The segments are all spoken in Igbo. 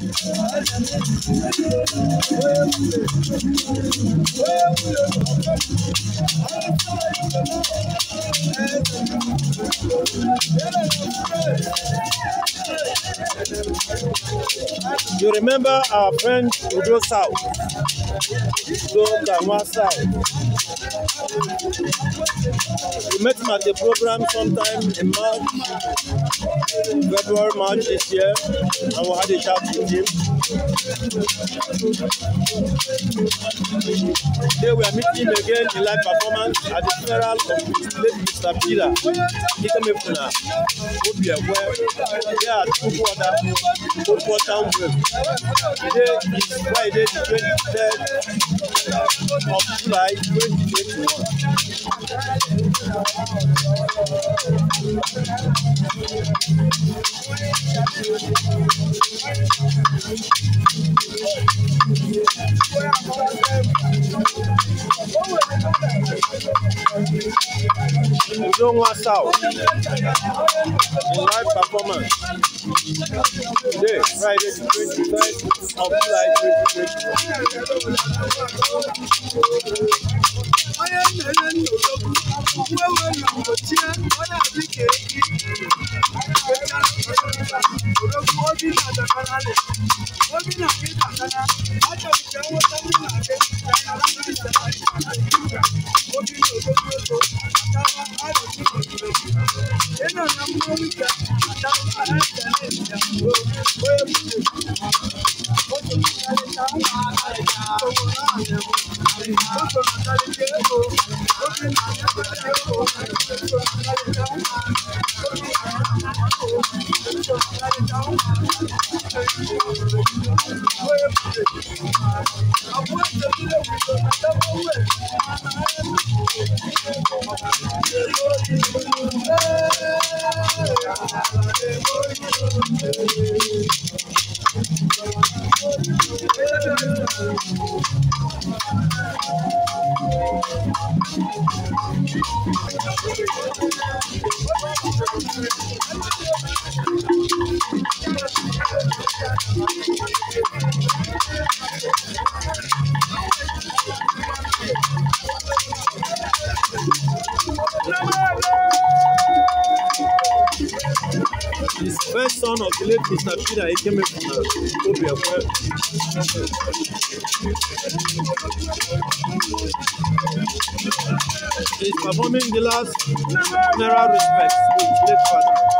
You remember our friend Udo South, Udo Kanwa South met him at the program sometime in March, February, March this year, and we had a chat with him. Today we are meeting him again in live performance at the funeral of late Mr. Peter Ikemefuna, Obia, where they are at Kukwata, Kukwata Wave. Today is Friday, the 23rd of July 2021. Don't want out live performance. Today, Friday, the 23rd of July 2021. 哎呦！His first son of the late Mr. Peter came from the uh, Obiakwe. He's performing the last general respects to his late father.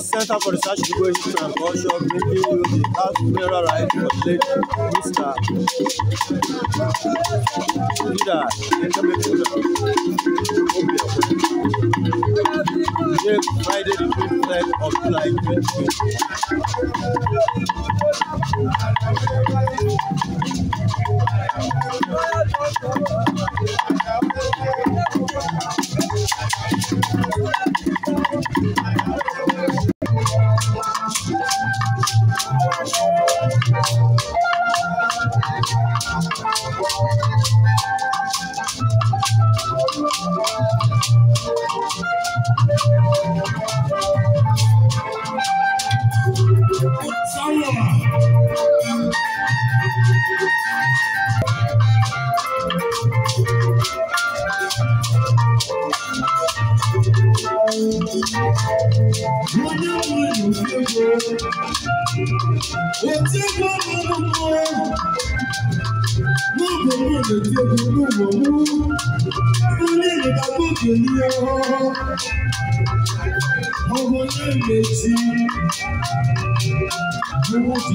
Santa Forçada de Goiás de Thank you. Onye nwere nsogbu, otiegwu ọmụmụ, n'oge m na-etiegwu n'ụlọ m, onye na-agbụ okenye ya, ọ bụ onye mmechi, ụmụ ụzọ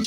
I'm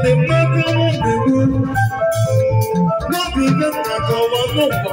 nwere mmadụ mbewu n'obi ibe nna ka ọwa n'ụkwa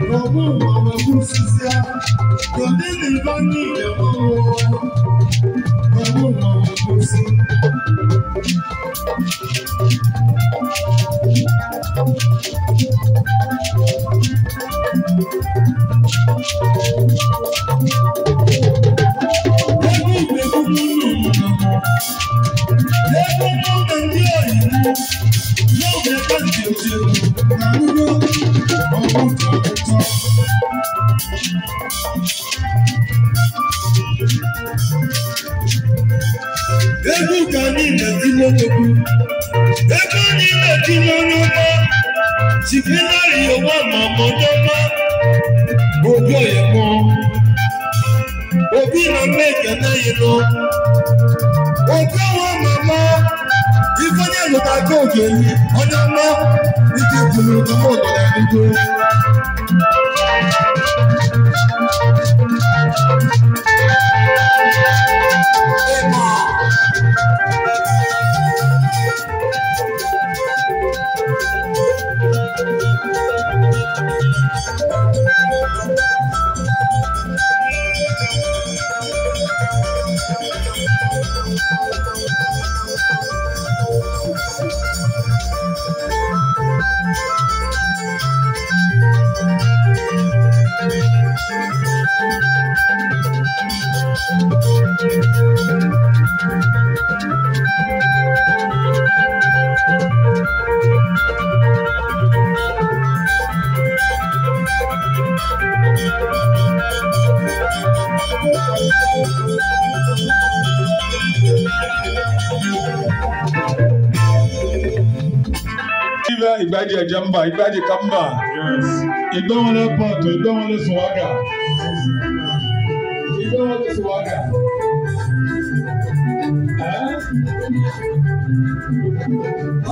Gbogbo ọmọ kú sísá, tòde lè bá ní ìyàwó ló ta gbóògbé yìí ọjọ́ mọ́ ní ti kùnú tó mọ̀ ọ̀gọ̀dà nígbó. Igbaji Ejemba, Igbaji Kamba, Igbawale Pọ̀tù, Igbawale Suwaga, Igbawale Suwaga.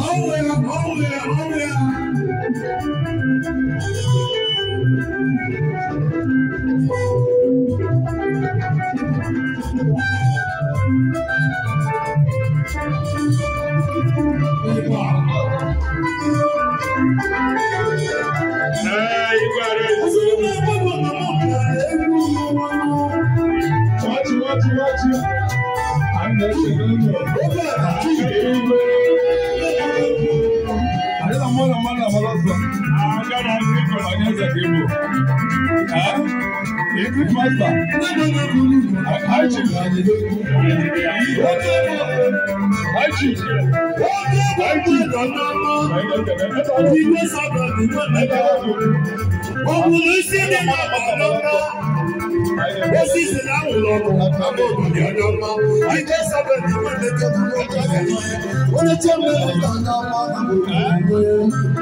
Ọ̀wẹ̀ ọ̀wẹ̀ ọ̀wẹ̀. Ikú pàṣẹ. Àjì. Àjì. Àjì. Ìgbé sọ̀rọ̀ nìkan nígbà wọ́n. Ògùnlù sí ní bàbá lọ́wọ́. Ó sì sì láwùn lọ́wọ́. Àbọ̀ òdòdó ọjọ́ mọ́. Ìgbé sọ̀rọ̀ nìkan nígbà wọ́n. Ó lè jẹ́ mẹ́rin lọ́wọ́.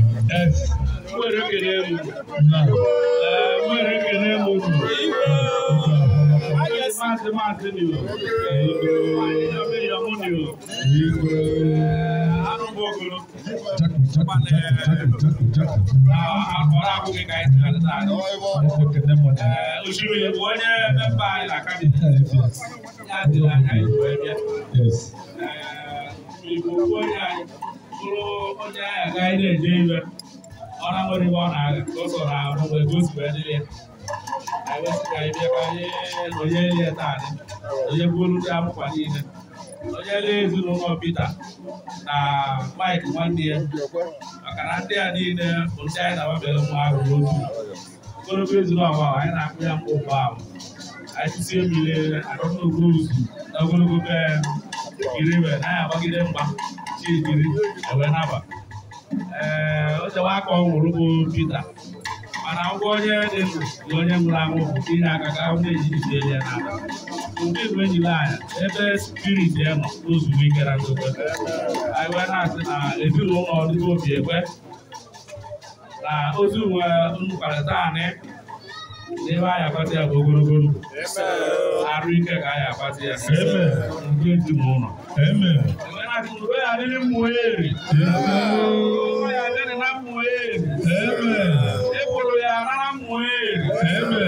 nwere ekele m nwere ekele m otu maazị maazị nio yamunio arụbụ ogolo akpọrọ abụghị ka anyị tụrụ ala osimiri bụ onye memba orang nwere ibe ọ na-aga ka ọ sọrọ ahụ mgbe ka o si wee dịrị ya anyị wesị ka anyị bịa ka anyị na onye elie taadị onye bụolu ndị akwụkwa niile onye elie ezinụlọ Pita na Mike nwanne ya maka na ndị a niile bụ ndị anyị na-agbabere nwa ahụ n'otu ogologo ezinụlọ ahụ anyị na-akpụ ya mkpa ụgbọ ahụ anyị si emile adọtụgo ozu na ogologo be ya kiri wee na-agbagide ee ochewa aka ọ nwụrụ bụ Pita mana ngwa onye dị ndụ na onye nwụrụ anwụ bụ inye aka ka ahụ na-ejizi ele na ala mgbe igwe ejila anya ebe spirit ya nọ ozugbo ike na ndokwe anyị wee na-asị na ezinụlọ ọdịgo obi ekwe na ozi uwe mkparịta anị n'ebe anyị akpata ya bụ ogologo ndụ arụ ike ka anyị akpata ya nke ezinụlọ akụrụ ya adịrị m eri ya adịrị na m eri ịkwụrụ ya arara m eri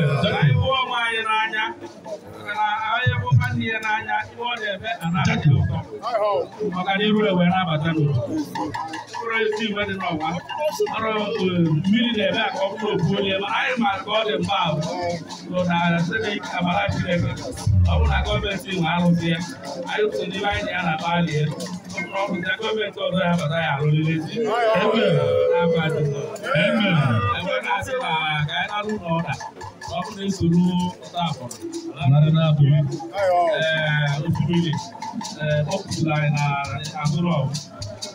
ịhụ ọma anyị n'anya na anyị bụ nwanne ya n'anya ihe ọ na-eme anaghị ụtọ maka na iru ewe na-abata n'ụlọ foresti mɛdi nɔ wa ɔrɔ mili dɛ bɛ akɔ kuro boli yɛ ma ayi ma kɔ de ba o to na se de kabala ti dɛ ɔmu na gɔmɛ ti ŋa alo fiyɛ ayi to ni b'ayi nya na ba liɛ ɔmu na gɔmɛ ti ɔdɔ ya bata ya alo lili ti ɛmɛ n'aba ti nɔ ɛmɛ ɛmɛ n'a ti na ka ɛna lu nɔ da ɔmu na esoro ɔta afɔ ala na bo ɛɛ ofurili ɛɛ ɔkutu la ɛna agorɔ.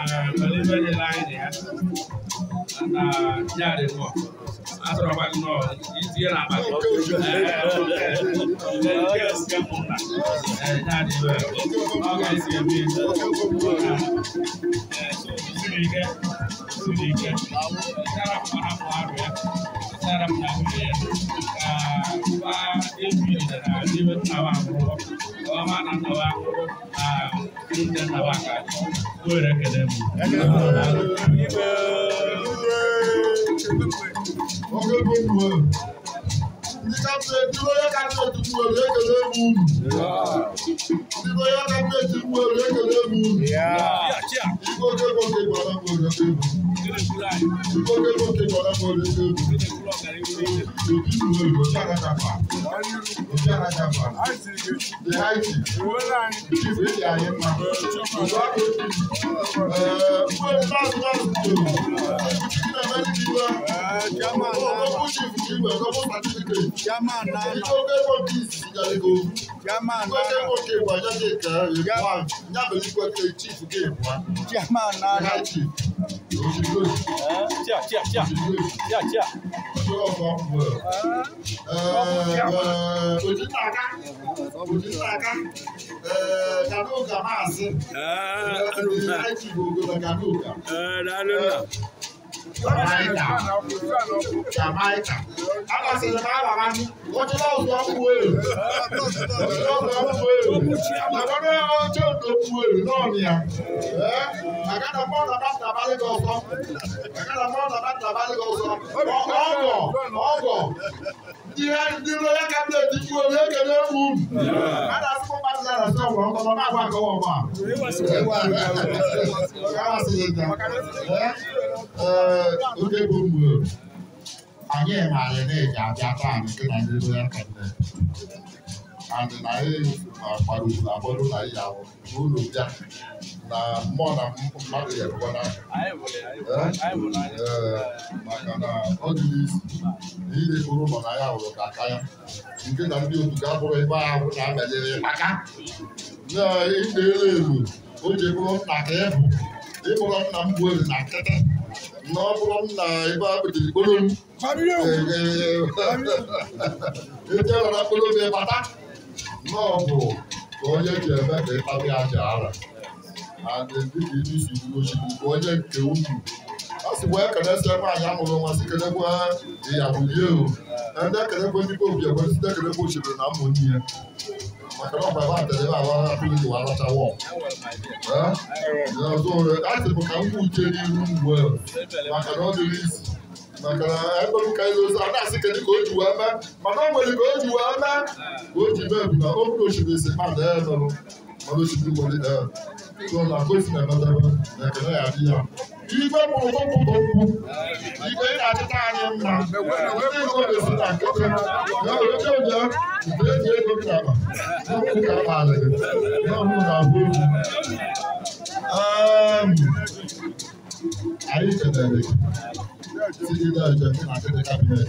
nwere ibe ya ọ ga mana nawa a mutan Abidjan Ajaba, the Haiti, Chief Edi Ayema, Olori last last two, Chief Emeliwa, Olori Chief Chief Ẹ̀kọ́ fún certificate, Ìjọba Ẹ̀kọ́ Peace Ìjàlẹ́kọ̀ọ́. Whether what they were just a girl, you want never look what the chief gave one. German, not chief. Tia, tia, tia, tia, tia. Kanuka, Master. Kanuka. Kanuka. Jamaica Jamaica àwọn sì ní máa bàbá wọ́n ti lọ́wọ́ tó kú èrè wọ́n ti lọ́wọ́ tó kú èrè àgbàdo náà wọ́n tí ò tó kú èrè náà ni à àgàdà pọ́ọ̀nà bá tàbá lé lọ́sọ àgàdà pọ́ọ̀nà bá tàbá lé lọ́sọ ọgọ̀ ọgọ̀ ihe ndị lọya kabinet ikwu obi ekele egwu a na-asịkwa mmadụ na asị ọgwụrụ ọkọ na agwa akọwa ọgba a onye bụ mgbe anyị maara na-eji abịa taa nke na n'elu ya kele and na anyị gbara ugwu agbọrụ na ihe ahụ n'ụlọ bịa na mmụọ na mmadụ ya ebuwa n'aka maka na ọ dị niile kpụrụ ụlọ na ya hụrụ ka aka ya nke na ndị otu ga-abụrụ ebe ahụ na-abanyere maka na ịdị elu ewu o ji bụrụ nna ka ịbụ ịbụrụ nna m gbuo na nkịtị No problem na ibo abidi gbólóhùn. Fàmílì o. Ìjẹ́ ọ̀rọ̀ gbólóhùn ẹ bàtà. Náà bò kò yẹ kí ẹ bẹ́ẹ̀ kí ẹ bá bí a jà ara. Àdèbí kì í ní ìṣubú lóṣù kò yẹ a sì wọ ẹkẹlẹ sẹ fún àyàmúlò wọn a sì kẹlẹ fún ìyàwó yìí o ẹnìtẹ kẹlẹ fún nípa òbí ẹgbẹ ní sídẹ kẹlẹ fún òṣèlú náà mọ ní ẹ màkàrà ọgbà bá tẹlẹ bá wà á fún ìwà aláta wọ ẹ ẹ so láti mọ kà ń kú jẹ ní irú wọ ẹ màkàrà ọdún rí sí màkàrà ẹgbẹ mi ka ẹlò sá náà sì kẹlẹ kò jù wá mẹ màkàrà ọgbẹlẹ kò jù wá mẹ kò jù bẹẹ bùnà ó fún òṣèlú ìsìn má lẹ ẹ lọ mọ lóṣèlú wọlé ẹ tó ọ̀nà àkóso ẹ̀ igwe bụ okwupụta okwu igwe ị na-achịta anyị mma ndị igwe na-esi na nkịtị n'oge ụjọ nke eji ego nkaba n'okwu ka a maara gị n'ọhụụ na-abụ okwu anyị kelere gị site n'ọjọ na ndị kabinet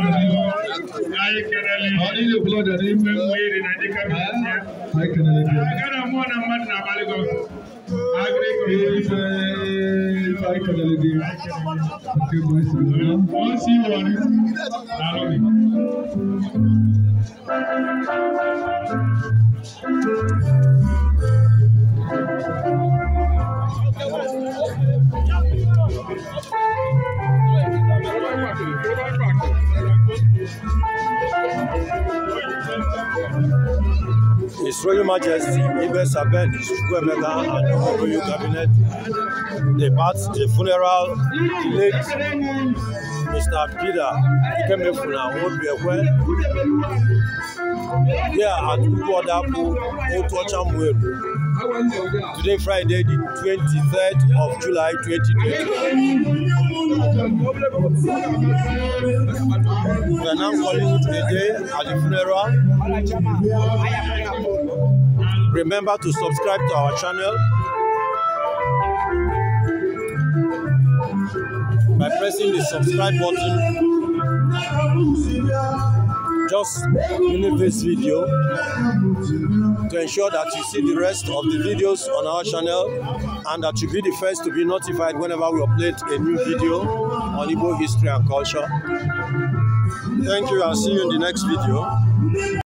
blood of Jesus. Only the blood of Jesus. I can elevate. If I can elevate, okay, boys, once you want it, I love it. Thank you. Royal Majesty Ibe Sabed Chukwuemeka and the Royal Cabinet depart the funeral the late Mr. Peter Ikemefuna Obiekwe here at Ukwadapu Otuochamwelu today Friday the 23rd of July 2020. We are now calling today at the funeral Remember to subscribe to our channel by pressing the subscribe button. Just leave this video to ensure that you see the rest of the videos on our channel and that you be the first to be notified whenever we upload a new video on Igbo history and culture. Thank you and see you in the next video.